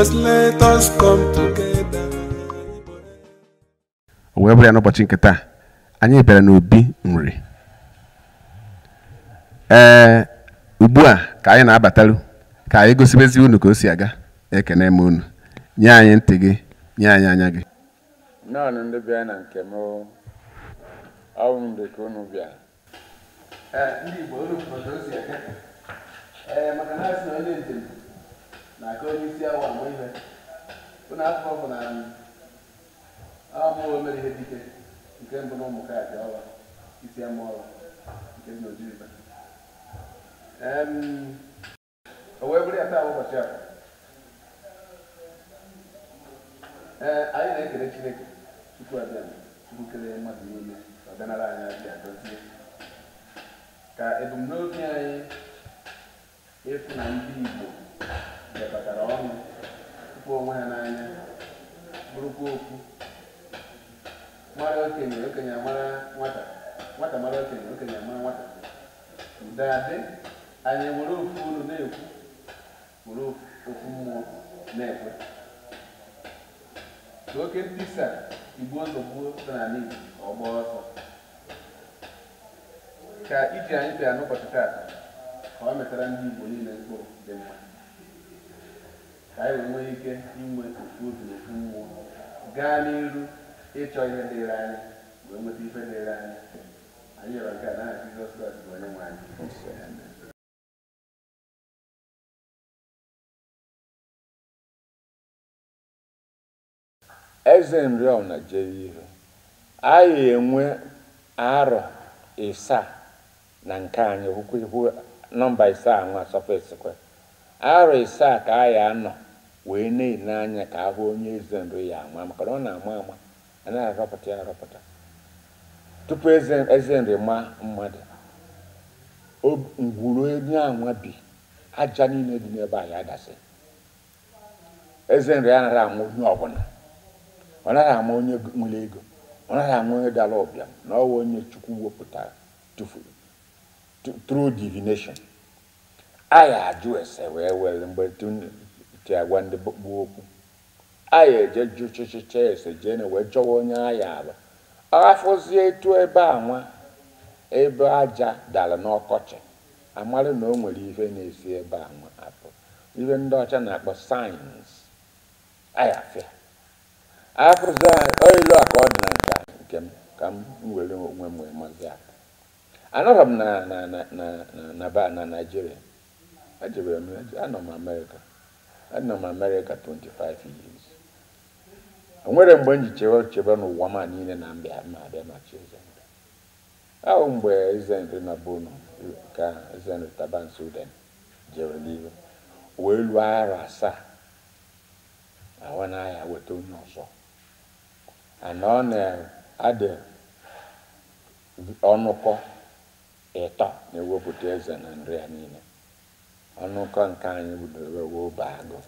just let us come together. wee bụrụ ya n'ụbọchị nke taa anyị bịara n'obi nri ee ugbu a ka anyị na-abatalu ka anyị gosibezi unu ka o si aga ekene m unu nye anyị ntị gị nye anyị anya gị nnọọ ndị bịa na nke m ọwụ mgbe ka unu bịa ndị Igbo unu ozi maka na asị na onye njem na aka onye isi awa mgbe ihe ụna afọ bụ na amụọ mere ihe dike nke mbụ na ụmụ kaadị ọwa isi ama amụọla nke dị n'ojiriba o wee bụrụ ya taa ụbọchị a ee anyị na ekere chineke tupu abịa chukwu kelee mmadụ niile ọdịnala anyị abịa dozie ka ebumnobi anyị ịfụ na ndị igbo lekọtara ọnụ hụpụ onwe ha n'anya bụrụkwa okwu mara okenye okenye amara nwata nwata mara okenye okenye amara nwata ụdadị anyị were ofu olu na-ekwu were ofu mmụọ na-ekwe ka oke ntisa igbu ụzọ gbuo dị n'ala Igbo ọgba ọsọ ka iji anyị bịa n'ụbọchị taa ka ọ metara ndị Igbo niile mkpụrụ dị mma ka anyị nwee ike inwe ofu obi na mmụọ gaa n'iru ịchọ ihe dịrị anyị wee nweta ife dịrị anyị anyị rịọrọ nke a n'aha Jizọs Kraịst bụ onye nwe anyị eze nriọna jere ihe anyị enwe arọ ịsaa na nke anyị hụkwa ihu nọmba ịsaa nwa sọfesikwe arọ ịsaa ka anyị anọ wee na-ele anya ka ahụ onye eze ndu ya ama maka na ọ na-ama ama anaghị arọpụta ya arọpụta tupu eze nri ma mmadụ ngwuru onye anwa bi aja niile dị n'ebe anyị adasị eze ya anaghị ama onye ọbụla ọ naghị ama onye nwere ego ọ naghị ama onye dara ọbịa na ọwa onye chukwu wepụtara tụfuru through divination anyị ajụ ese wee were mgbe ji agwa ndị gbu okwu aya eje ju chịchịcha ese jee na wee chọwa onye agha ala aghafụzie etu ebe a ebe aja dara n'ọkọchị amarị na o nwere ihe na-esi ebe a nwa apụ ndị ọcha na-akpọ sayensị ayafịa afụzi oyilu a ka ọ dị na nka nke m ka m were onwe m wee mazi m na na na na na m anọ m anọ m Amerịka 25 years o nwere mgbe m ji chebe chebe n'ụwa ma niile na mbịa ma abịa machi ezendụ ahụ mgbe ezendụ na bono ka ezendụ taban Sudan jere n'ihu wee lụọ arọ asaa ahụ n'ahịa weta onye ọzọ ana ọ na-adị ọnụkọ ịtọ na-ewepụta eze na nri ya niile Ọnụ ọnụkọ nke anyị bidoro obe agụ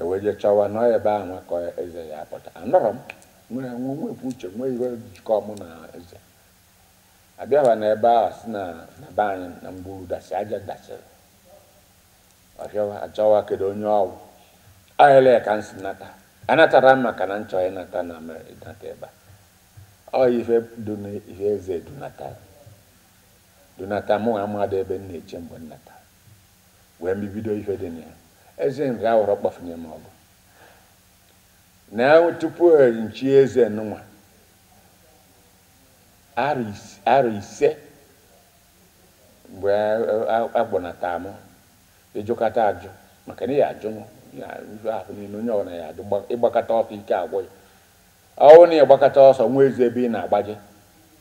eweje chọwa nọ ebe ahụ nwekọ eze ya pụta anọrọ m nwere nwe nwepụ uche nwee iwe jikọ mụ na eze na ebe a si na be anyị na mbụ dasị aja dasịrị ọbịawa achọwa kedu onye ọwụ ahịla ka m si nata anatara m maka na nchọ ịnata na ịnata ebe ọ ife ihe eze dunata dunata mụ na amadị ebe m na-eche mgbe nnata wee mbibido ife dị na eze nri awụrọ kpọfunye m ọgụ na tupu e nchi eze nwa arọ ise mgbe e, e, agbọnata m ịjụkata ajụ maka na ya ajụ ife ahụ niile onye ọbụla ya ajụ ịgbakọta ọsọ ike agwụ ya ọwụ na ịgbakọta ọsọ nwa ezi ebe ị na-agbaje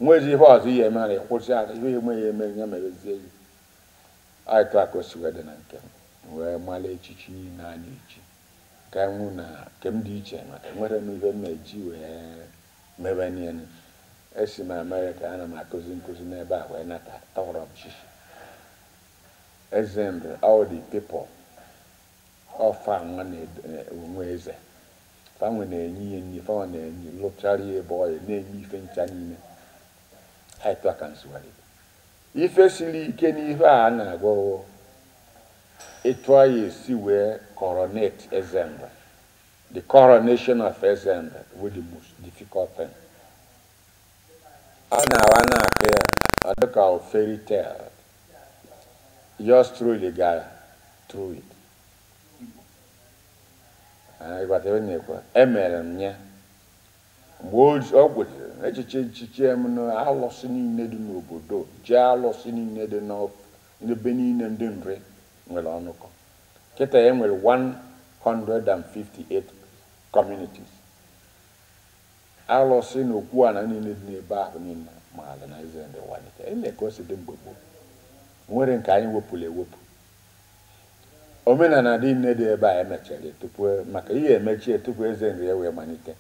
nwa ezi ihe ọzọ ihe mere kwụsị ife eme ya eme ya merezie ya ka aịtụ akosiwedịna nke m wee mara echichi niile anyị echi ka nwụ na nke m dị iche maka nwere m ihe m na-eji wee mebe niile esi m amerịka ana m akụzi nkụzi n'ebe a wee nata tọrọ m chichi eze ndụ all the people ọfa nwa na-enwe eze fanwe na-enye ihe nri fanwe na-enye lụchara ya ebe ọ ya na-enye ife ncha niile aịtụ aka nsuwarị ife siri ike n'ife a na-agwọwo ịtụọ ya esi wee coronate Ezemba the coronation of Ezemba bụ the most difficult thing. ọ na-awa na-akụ ya ọ dịka o fairy tale yours truly gara through it. ịgbata ebe na-ekwe emere m ya mgbe ọ gwụrụ echiche nchichi m na alụsị niile dị n'obodo ji alụsị niile dị n'ebe niile ndị nri nwere ọnụkọ nkịta e nwere 158 communities alụsị na okwu ala niile dị n'ebe ahụ niile ma ala na eze ndị walite ele ka e dị mgbe gboo nwere nke anyị wepụrụ ewepụ omenala niile dị ebe a emechara tupu maka ihe emechie tupu eze nri wee malite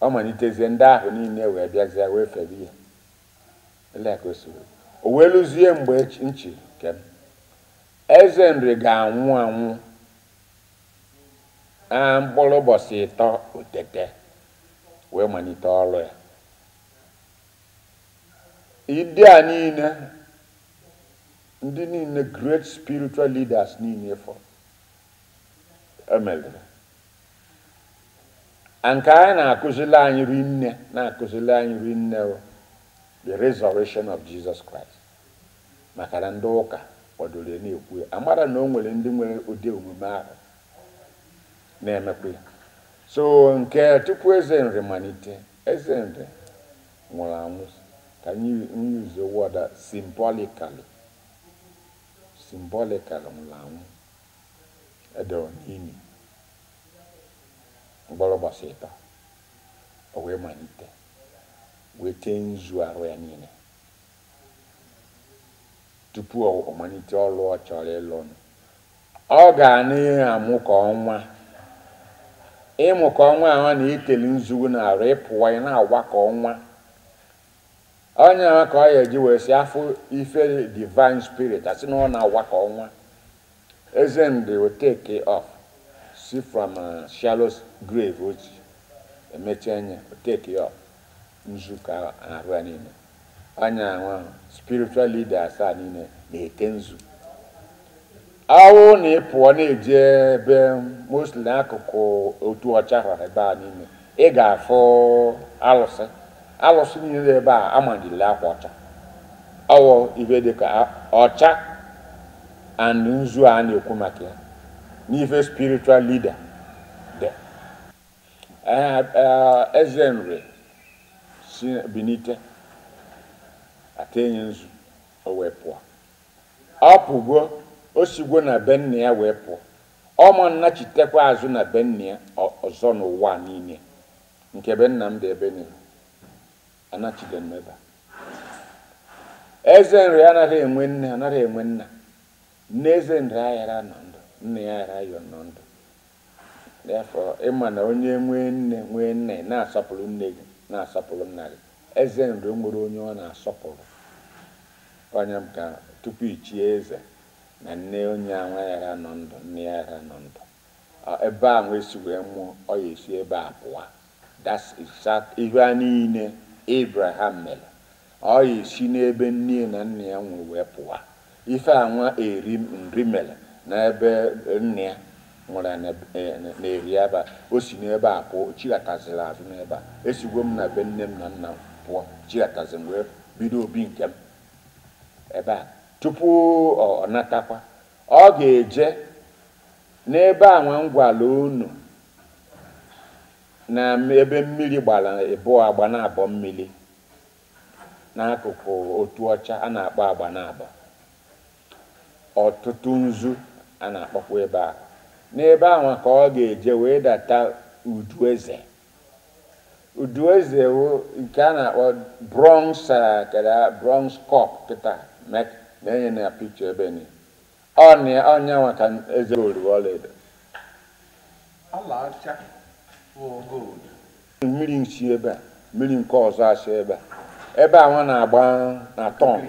ọ malitezie ndị ahụ niile wee bịazie wee febe ihe o wee lụzie mgbe nchi kem eze nri ga-anwụ anwụ a mkpụrụ ụbọchị ịtọ otete wee malite ọrụ ya ndị a niile ndị niile great spiritual leaders niile fọ emelere nke anyị na-akụzili anyị rinne na-akụzili anyị rinne the resurrection of Jesus Christ maka na ndị ụka kwadoro na-ekwu ya amara na o nwere ndị nwere ụdị omume ahụ na emekwe so nke tupu eze nri malite eze nri nwụrụ anwụ ka nyuze wọda simbolikali simbolikali nwụrụ anwụ edo anwụ. mgbọrọgba sịpa o wee malite wee tee nzu arụ ya niile tupu ọ malite ọrụ ọ chọrọ ịlụ ọnụ ọ ga na-amụ ka ọnwa ịmụ e ka ọnwa ahụ na iteli nzugu na arụ ịpụwa ya e na-agwa ka ọnwa onye ahụ ka ọ ya eji wee si afọ ife divine spirit asị na ọ na-agwa ka ọnwa eze ndị o take see from uh, shallow grave ochie emechi uh, anya uh, take uh, ya nzu ka arụ niile anya nwa spiritual leader asaa niile na-ete nzu awụ na ịpụọ na-eje ebe mostly akụkụ otu ọcha ha ebe a niile ị ga-afụ alụsị alụsị niile ebe a amanyere akwa ọcha ọwụ ibe dịka ọcha and nzu a na-ekwu maka ya n'ife spiritual leader dị eze nri si benite atenye nzu o wee pụọ ọ pụgo o sigwo na be ya wee pụọ ọ ma nnachitekwa azụ na be ya ọzọ n'ụwa niile nke benna m dị ebe niile anachide mmeba eze nri anaghị enwe nne anaghị enwe nna nne eze nri aghara nọ nne ya araghị ndụ therefọ ịma na onye nwee nne nwee nna na-asọpụrụ nne gị na-asọpụrụ nna gị eze nri nwere onye ọ na-asọpụrụ onye m ka tupu ichie eze na nne onye nwa ya nọ ndụ nne ya ya nọ ndụ ebe a nwee si wee mụọ ọ ya esi ebe a pụwa ihe a niile ibraham mere ọ ya esi n'ebe nne na nna ya nwee wee pụwa ife anwa eri nri mere n'ebe nne ya nwere na-eri ebe a o si n'ebe a pụọ chilataziri azụ n'ebe a esigwo m na be nne m na nna m pụọ chilatazi m wee bido obi nke m ebe a tupu ọ natakwa ọ ga-eje n'ebe a nwa ngwala unu na ebe mmiri gbara bụọ agba na-abọ mmiri n'akụkụ otu ọcha a na-akpọ agba na-abọ ọtụtụ nzu a na-akpọkwa ebe a n'ebe ahụ ka ọ ga-eje wee data udu eze udu eze nke a na-akpọ bronz kara bronz kọp kịta na-enye na pikcha ebe ni ọnya nwa ka eze ori ọlaedo mmiri nsi ebe a mmiri nke ọzọ asị ebe a ebe a nwa na-agba na tọn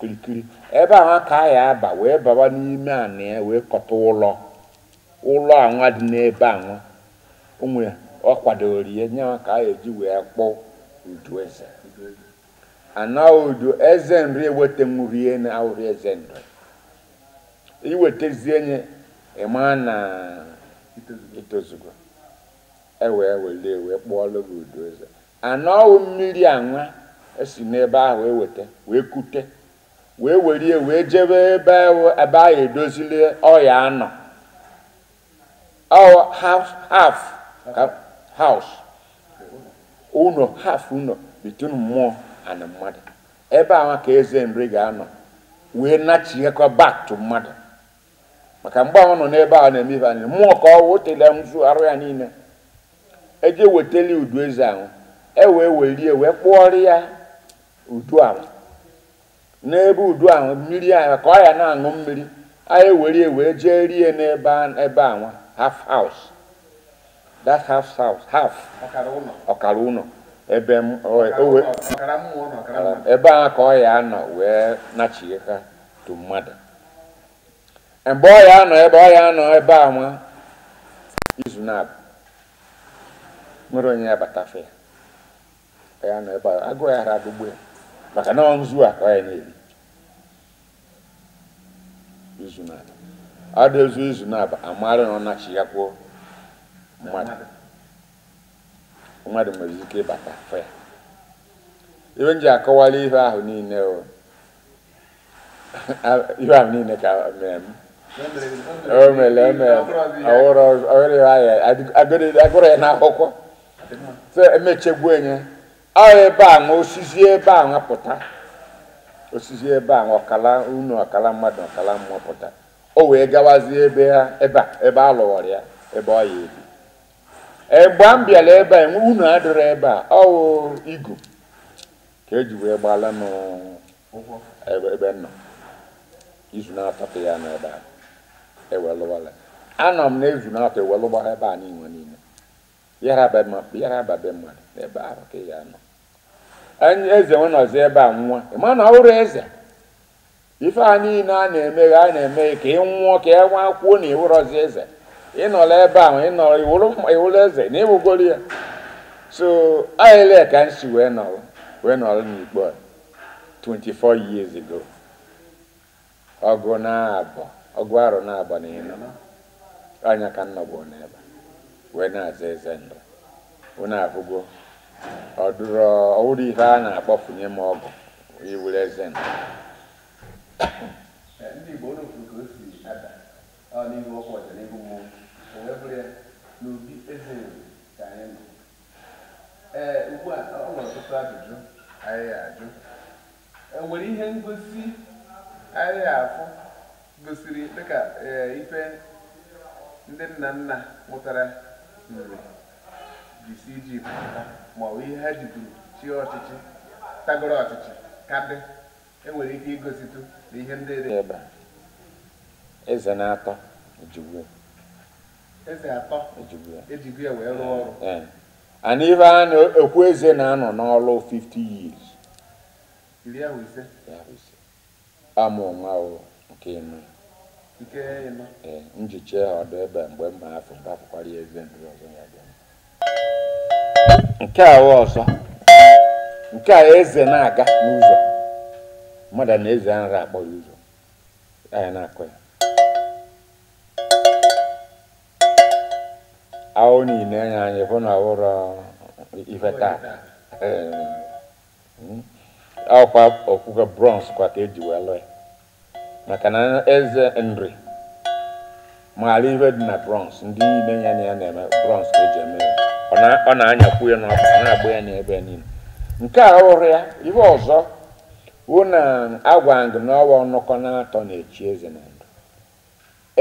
kirikiri ebe ahụ ka anyị aba wee baba n'ime anị ya wee kọta ụlọ ụlọ anwa dị n'ebe anwa onwe ọ kwadoro ya nye ka a eji wee kpọọ udu eze ana udu eze nri eweta nwurie na awụrụ eze nri iwetazie nye ịma na itozugo ewee were wee kpọọlụ gị udu eze ana mmiri anwa esi n'ebe ahụ eweta wee kute wee werie wee jebe ebe ebe ahụ edozili ọya anọ ọ half half house ụnọ half between mmụọ and mmadụ ebe ahụ ka eze nri ga-anọ wee nachighekwa back to mmadụ maka mgbe ahụ nọ n'ebe ahụ na-eme ife anyị mmụọ ka ọ wotele nzu arụ ya niile eje wetali udu eze ahụ e wee werie wee kpụọrọ ya udu ala n'ebe udu ahụ mmiri anyị ka ọ ya na-aṅụ mmiri anyị were ya wee jee ebe anwa half house ọkara ebe a ka ọ ya anọ wee nachie ha tu mmadụ mgbe ọ ya anọ ebe ọ ya anọ ebe anwa izu na nwere onye ya ya ebe ya a izu na ada ezu izu na abụ amara na ọ nachighakwo mmadụ mmadụ nwere ike ịbata afọ ya iwe nji ji akọwala ihe ahụ niile o ihe ahụ niile ka mere m o mere eme agụrụ ya n'akwụkwọ emechegbuo enye ọ ebe a nwụsizie ebe a nwapụta osisi ebe a ọkala unu ọkala mmadụ ọkala mmụọ pụta o wee gawazie ebe ha ebe a ebe a lụwara ya ebe ọ ya ebi egbe m bịara ebe a unu adịrọ ebe a ọwụ igu ka eji wee gbala ebe nọ izu na-atọtụ ya n'ebe a ewelụwala anọ m na izu na-atọ ewelụgba ebe a niile niile yara be mmadụ ebe ahụ ka ya nọ eze nọzi ebe a nwa ịma na ọhụrụ eze ife a niile a na-eme a na-eme ka ị nwụọ ka e nwa kwuo na iwụrọzi eze ịnọla ebe ahụ ịnọrọ iwụrụ eze na ịwụgoro ya so ayele ka m si wee nọrọ wee nọrọ n'ikpe 24 years ago ọgụ na-abọ ọgụ arụ na-abọ na ịnọ anya ka m nọgbu n'ebe wee na-aza eze ndụ wee na ọwụrụ ihe a na nye m ọgụ iwere eze m eh, ndị Igbo ka o si ọ n'ihu ọkụ ọja n'ihu mmụọ n'obi eze ka anyị eh, ugbu a ọ nwere ọtụtụ ajụjụ enwere ihe ngosi anyị gosiri dịka eh, ife ndị nna nna mụtara nri jisi iji pụta ma ọ bụ ihe ha jiburu chi ọchịchị tagoro ọchịchị ka dị enwere ike igositụ na ihe ndị dị ebe eze na-atọ ejigwe eze atọ ejigwe ya wee rụọ ọrụ and ife a na-ekwu eze na-anọ n'ọrụ 50 years iri ahụ ise amụ nwa nke ịnọ nke ịnọ ee njiche ọdụ ebe mgbe mma afọ ga-afụkwara ya eze ndị ọzọ ya bịa nke a ọzọ nke a eze na-aga n'ụzọ mmadụ na eze nra akpọ ya ụzọ anyị na-akọ ya awụ niile anya anyị bụ na ọhụrụ ife taa ọkwa hmm. okwukwe bronze kwa ka eji wee lụọ ya maka na eze nri maara ihe dị na bronze ndị niile ya na ya na-eme bronze ka eji eme ya ọ na-anyakwu ya n'ọkpa na-agba ya n'ebe niile nke a ọrụ ya ibe ọzọ wụ na agwa gị n'ọwa nnọkọ na-atọ na-echi eze na ndụ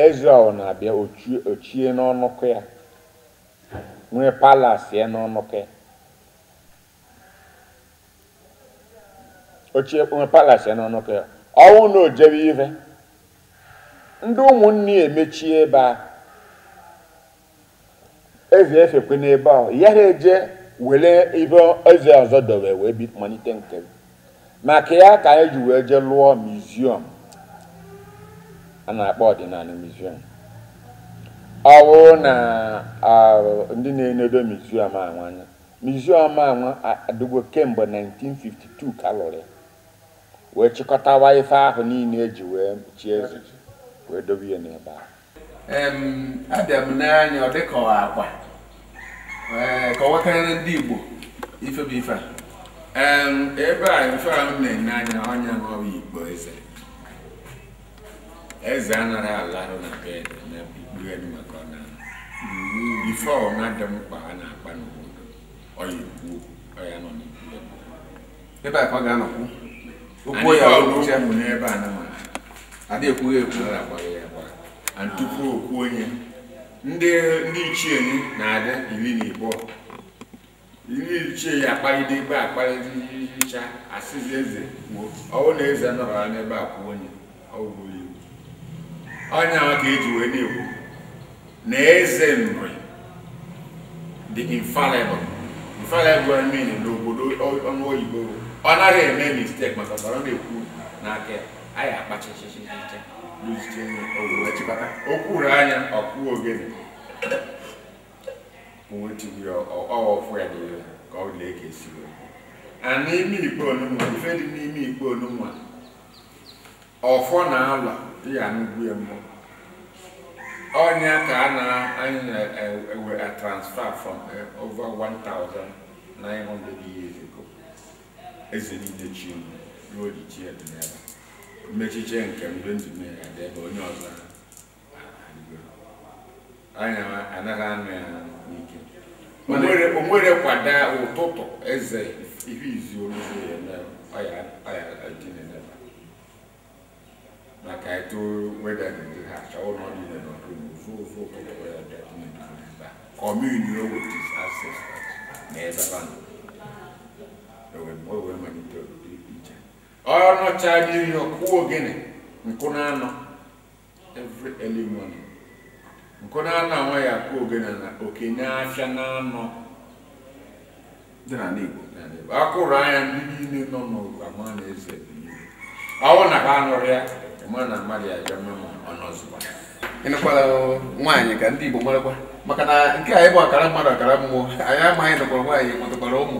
eze ọ na-abịa ochie n'ọnụkụ ya nwee palasi ya n'ọnụkụ ya ochie nwee palasi ya n'ọnụkụ ya ọnwụ na ojebe ive ndị ụmụnne ya emechie ebe ahụ ezi efekwe n'ebe ahụ ya na eje were ibe eze ọzọ dọrọ wee malite nke maka ya ka anyị e ji wee jee lụọ miziọm a na-akpọ ọdịnala miziọm ọ bụrụ na ndị na-enedo miziọm anwanya miziọm anwa adịgo kemgbe 1952 ka lụrụ wee chịkọtawa ife ahụ niile eji wee chie eze wee dobe ya n'ebe ahụ abịa m n'anya ọ dịkọ akwa Eh, ka ọ ndị Igbo ife bụ ife a ebe a ife a m na-enye anya onye na Igbo eze eze anaghị na bed na maka ọ na ife ọma dị mkpa a na-akpa n'obodo ọya igbuo ọya nọ ebe a ka ọ ga-anọkwu okwu ya ọrụ n'ebe a na adịghị ekwughị ekwu na agbaghị ya gbara tupu okwu onye ndị ndị ichie na-adị iri na igbo iri ichie ya akpalide ebe akpalide ihicha asịzi eze kwuo ọwụ na eze nọrọ n'ebe a kwuo onye ọnya ka eji wee na-ekwu na eze nri dị infallible infallible na n'obodo ọnụ oyibo ọ naghị eme mistake maka ọ na-ekwu n'aka anyị akpachachichicha chịkọta okwuru anya ọkpụ ogene onwechigbu ya ọwụfụ ya n'iwe ka ọ lee ka esi wee a n'ime ikpe onunwa ife n'ime ikpe onunwa ọfọ na ala ya n'ugwu mmụọ ọnya ka a na-anyị na-ewe e, a transfer from e, over 1,900 years ago eze niile chi ruo ji chi mmechiche nke mgbe ndụ mmiri adị ebe onye ọzọ anya anaghị anụ ya n'ike onwere kwada ụtụtụ eze ihe izu oluzi ya maka eto weda dị ha achọwụ na ọ dị ire n'ọdụ ụzụ ụzụ ụtụtụ ya bịa ebe a kọmuni o wetis ases na ebe a nọ o e ọ nọchara ihe ọkụwa ogene nkụ na anọ every early morning nkụ na anọ anwa ya akụ ogene na okenye afịa na anọ dị na n'igbo akụrụ anya ndị niile nọ n'ama na eze ọwụ na ha anụrụ ya ma na mmadụ ya bịa mma ọ nọzụkwa ịnụkwala nwaanyị ka ndị igbo marakwa maka na nke a ịbụ akara mmadụ akara mmụọ anyị amaghị nụkwara nwaanyị nwetakwara ụmụ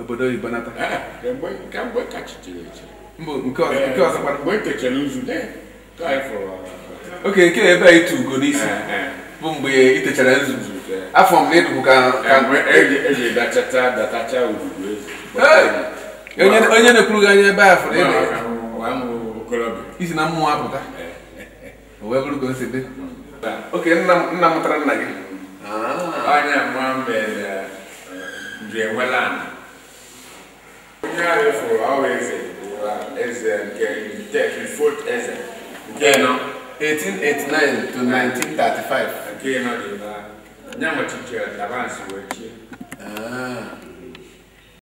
obodo oyibo nata ah, eh, nke eh, mgbe oke nke eh, ebe ugo n'isi bụ mgbe ị techara nzuzu afọ m na ka e e onye na-ekwuru gị anya ebe a fụrụ isi na mmụọ apụta wee bụrụ ka dị hmm. oke nna mụtara nna gị ah, nyaarefo awo eze 1889 to 1935. nke nọ